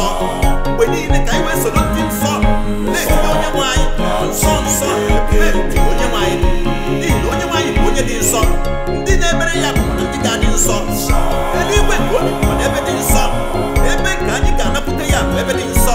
nsọ mgbe niile ka anyị wee soro ndị nsọ na-ekiri onye nwe anyị nsọ nsọ na-eti onye nwe anyị n'ihi na onye nwe anyị bụ onye dị nsọ ndị na-emere ya bụ ndị ga-adị nsọ eluigwe ka o bikwa n'ebe dị nsọ ebe nke anyị ga-anapụta ya bụ ebe dị nsọ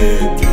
head.